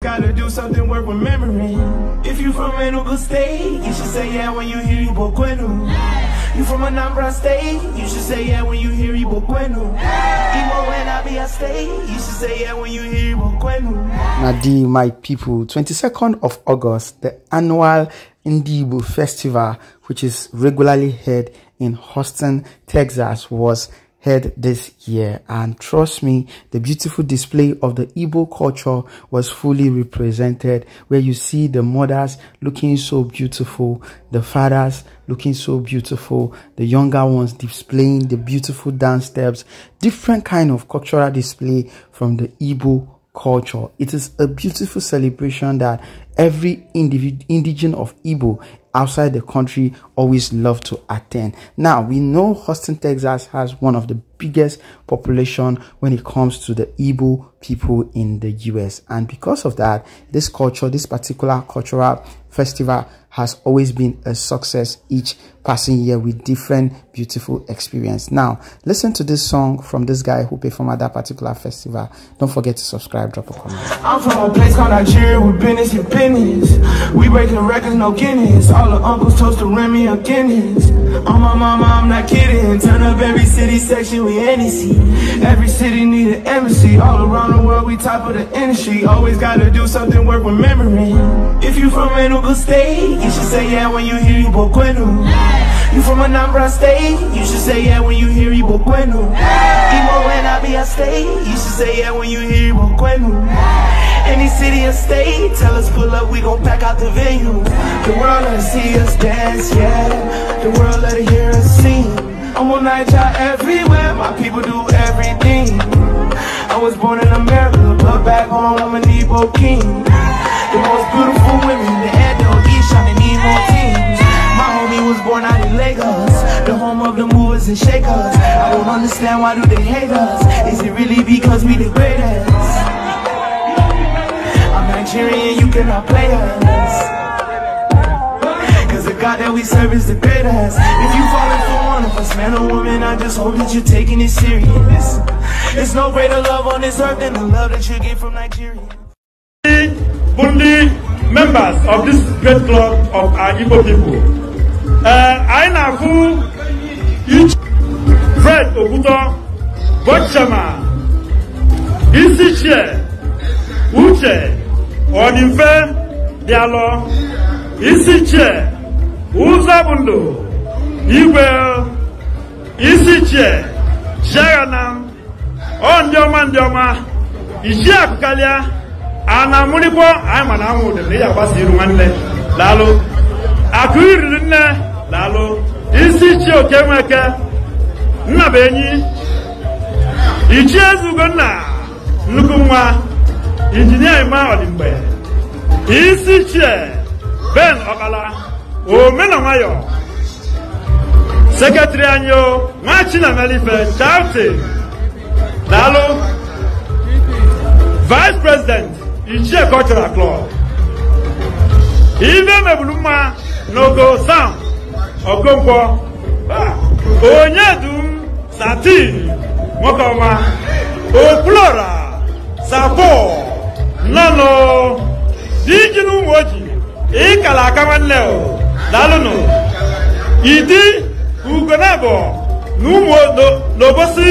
Gotta do something worth remembering. If you from Enugu State, you should say yeah when you hear Igbo Kwenu. Yeah. You from Anambra State, you should say yeah when you hear Igbo Kwenu. Yeah. Igbo when I be a state, you should say yeah when you hear Igbo Kwenu. Nadi, my people, 22nd of August, the annual Indibo Festival, which is regularly held in Houston, Texas, was head this year. And trust me, the beautiful display of the Igbo culture was fully represented where you see the mothers looking so beautiful, the fathers looking so beautiful, the younger ones displaying the beautiful dance steps, different kind of cultural display from the Igbo culture. It is a beautiful celebration that every individ- indigene of Igbo outside the country always love to attend. Now, we know Houston, Texas has one of the biggest population when it comes to the Igbo people in the US. And because of that, this culture, this particular cultural festival has always been a success each passing year with different beautiful experience. Now, listen to this song from this guy who performed at that particular festival. Don't forget to subscribe, drop a comment. I'm from a place called Nigeria with business and business. We breaking records, no guineas. All the uncles toast to Remy and Guineas. On my mama, I'm not kidding. Turn up every city section, we NEC. Every city need an embassy. All around the world, we top of the industry. Always gotta do something worth remembering. If you from Enugu State, you should say yeah when you hear you Boquenu. You from Anambra State? You should say yeah when you hear Ibo Kwenu. Imo when I be a state? You should say yeah when you hear Ibo Kwenu. Any city or state, tell us pull up, we gon' pack out the venue. The world let see us dance, yeah. The world let hear us sing. I'm on Nigeria everywhere, my people do everything. I was born in America, but back home I'm an Igbo king. The most beautiful women, the Edo, Ishan, and Emo teens. My homie was born out Lagos The home of the movers and shakers I don't understand why do they hate us Is it really because we the greatest? I'm Nigerian, you cannot play us Cause the God that we serve is the greatest If you falling for one of us, man or woman I just hope that you're taking it serious There's no greater love on this earth than the love that you get from Nigeria Bundi members of this great club of our Igbo people Eh, anyị na-afụ Fred Okwutọ bọchama isi chie uche ọdịmfe alọ. isi chie ụzọ bụ igwe isi chie chiagana ọ ndị ọma ndị ọma iji akụkalịa, a na-amụrịkwa anyị ma na anwụ ụdị ya ịya gbasa iru nwanne daalụ akụ iriri nne lalo isi chi okenweke nnabenyi ichie eze ugonna nnukwu nwa injinia ima ọdịmgbe isi chie ben ọkala omena nwayọ seketiri anyị o nwa chinamelife chauti daalụ vice president ichie cultural club ibe mebulu mma n'ogo sam Okonkwo Onyedu Satin Mokoma Oplora Sapo dị Diji n'ụmụ oji ịkala aka nwanne dalụnụ Idi Ugonebo n'ụmụ n'obosi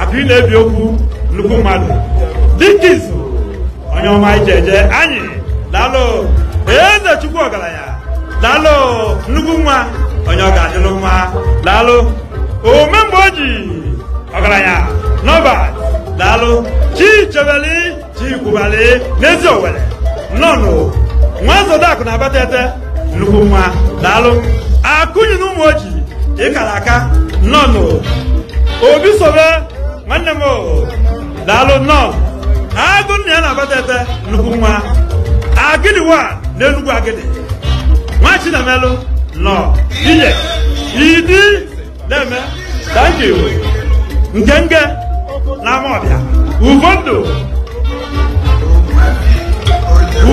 abịa na-ebi okwu nnukwu mmadụ dịka izu onye ọma ije anyị nnukwu nwa onye ọ ga-adịlụ mma daalụ ome mgbe o ji ọgaranya nọba daalụ chi chebeli chi kwubali n'ezi owere nnọnụ nwa zodakụ na abatete nnukwu mma daalụ akụnyi na ụmụ oji ịkara aka nnọnụ obi sobe nwanne m daalụ nnọọ agụ nna ya na-abatete nnukwu nwa agịdị wa n'enugwu agịdị nwa chinamelụ nọ inye idi na-eme thank you nke nge n'amọbịa ugondụ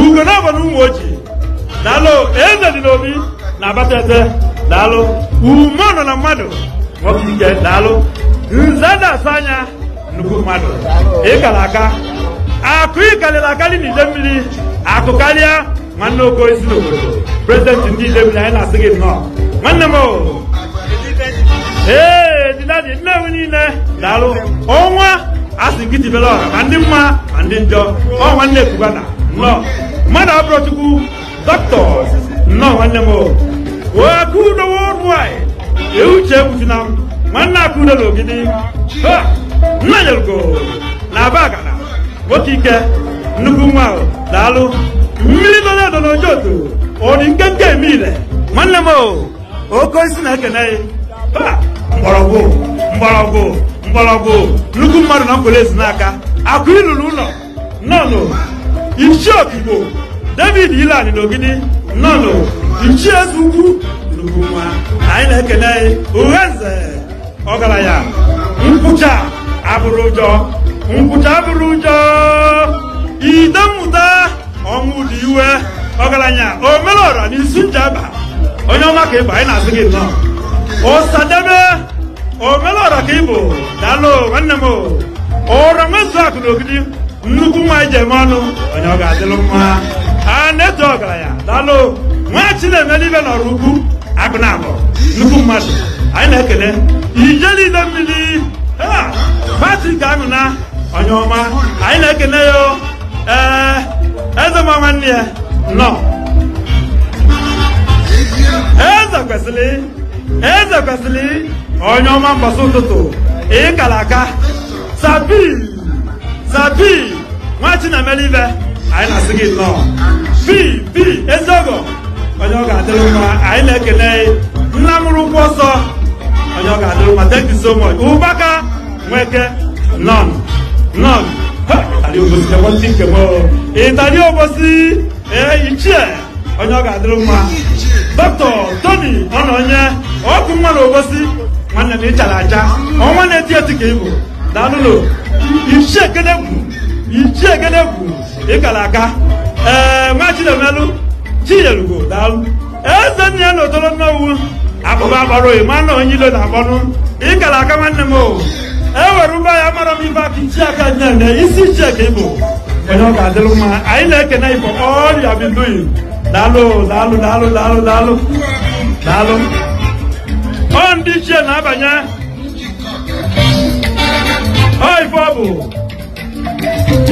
ugo na abalị ụmụ ojii daalụ eze dị n'obi na abata eze daalụ ume nọ na mmadụ nwoke ike daalụ nze na-asa anya nnukwu mmadụ ịkara aka akụ ịkarịrị akarị n'ide mmiri akụ karịa nwanne oke isi n'obodo prezidenti ndị ile bi na anyị na-asị gị nnọọ nwanne m ee ejidadi nnewi niile daalụ ọnwa asị gị tibere ọha ma ndị mma ma ndị njọ ọ nwanne ekwugana nnọọ mmadụ abụrụ chukwu nnọọ nwanne m wee aka udo wọdụ anyị euche egbutina m nwanne aka udo na ogidi nna nyerugo na aba agana nwoke ike nnukwu nwa daalụ miliyɔn dɔ n'o jɔ to o ni kɛnkɛ mi lɛ mɔnlɛmɔ o ko sinɛ kɛnɛ ye ba nbɔlɔko nbɔlɔko nbɔlɔko nugu mmadụ na nkwele si n'aka akụ ilulu ụlọ nọnụ ichi okigbo david ilan n'ogidi nọnụ ichi eze ukwu nugu nwa anyị na-ekene uhenze ọgaranya nkwụcha abụrụ ụjọ nkwụcha abụrụ ụjọ ide ọnwụ dị iwe ọgaranya omelora na isi njaba onye ọma ka ịbụ anyị na-asị gị nnọọ ụsadebe omelora ka ịbụ daalụ nwanne m ụra nwezu akụ na ogidi nnukwu nwa anyị ji eme ọnụ onye ọ ga-adịlụ mma a na-eto ọgaranya daalụ nwachi na-eme n'ibe n'ọrụ ukwu agụ na abụ nnukwu mmadụ anyị na-ekele ije niile mmiri Patrik Anụna onye ọma anyị na-ekele ya ee eze ma nwanne ya nọ eze kwesịrị eze kwesịrị onye ọma mbọsị ụtụtụ ịkara aka zabi na nwa chinamelibe anyị na-asị gị nnọọ bi bi eziọgọ onye ọ ga-adịrị ma anyị na-ekele nna mụrụ ụkwụ onye ọ ga-adịrị mma thank you so much ụbaka nweke nọn nọn tali obosi chekwa ndị nkemo ịtali obosi ee ichie onye ọ ga-adịrị mma dọkịta toni ọnọnye ọkụ nwa na obosi nwanne na ịchara aja ọnwa na-eti eti ka ịbụ daalụlụ ichie gedegwu ichie ị gara aga. ee nwa chinemelụ chinyerugbo daalụ eze nne ya na odolo mmanwu akpụba agbara oyi mana onye ilo na ị gara aga nwanne m o ewere ụgbọ ya mara m ibe aka iji aka nyere isi iche ka ịbụ onye ọ ga adịrị mma anyị na-ekene igbo ọrịa binduyi daalụ daalụ daalụ daalụ daalụ daalụ ọ ndị ichie na-abanye ọ ife ọ bụ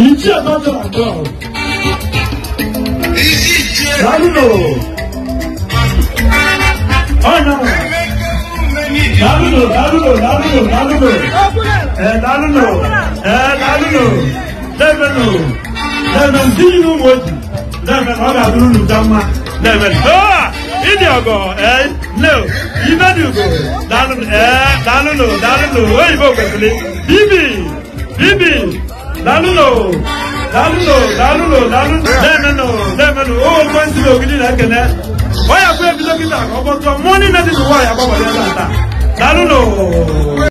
ichie dọjọ abụọ daalụ ọ nyawa lálùlò lálùlò lálùlò lálùlò Eh, lálùlò Eh, lálùlò lẹ́mẹ̀lò lẹ́mẹ̀ tí inú mo jù lẹ́mẹ̀ lọ́dà lúlù dámà lẹ́mẹ̀ lọ́wọ́ ìdí ọ̀gọ̀ ẹ lẹ́ o ìbẹ́dùgò lálùlò ẹ lálùlò lálùlò òyìnbó gbẹ̀gbẹ̀lé bíbì bíbì lálùlò lálùlò lálùlò lálùlò lẹ́mẹ̀lò lẹ́mẹ̀lò ó gbọ́n síbi ògidì rẹ̀ kẹ̀lẹ́ wọ́n yà fún ẹbí dókítà àkọ́kọ́ tó mọ́ ní nẹ́tì tó wà yà bọ́ wọlé ẹ̀ Saludos.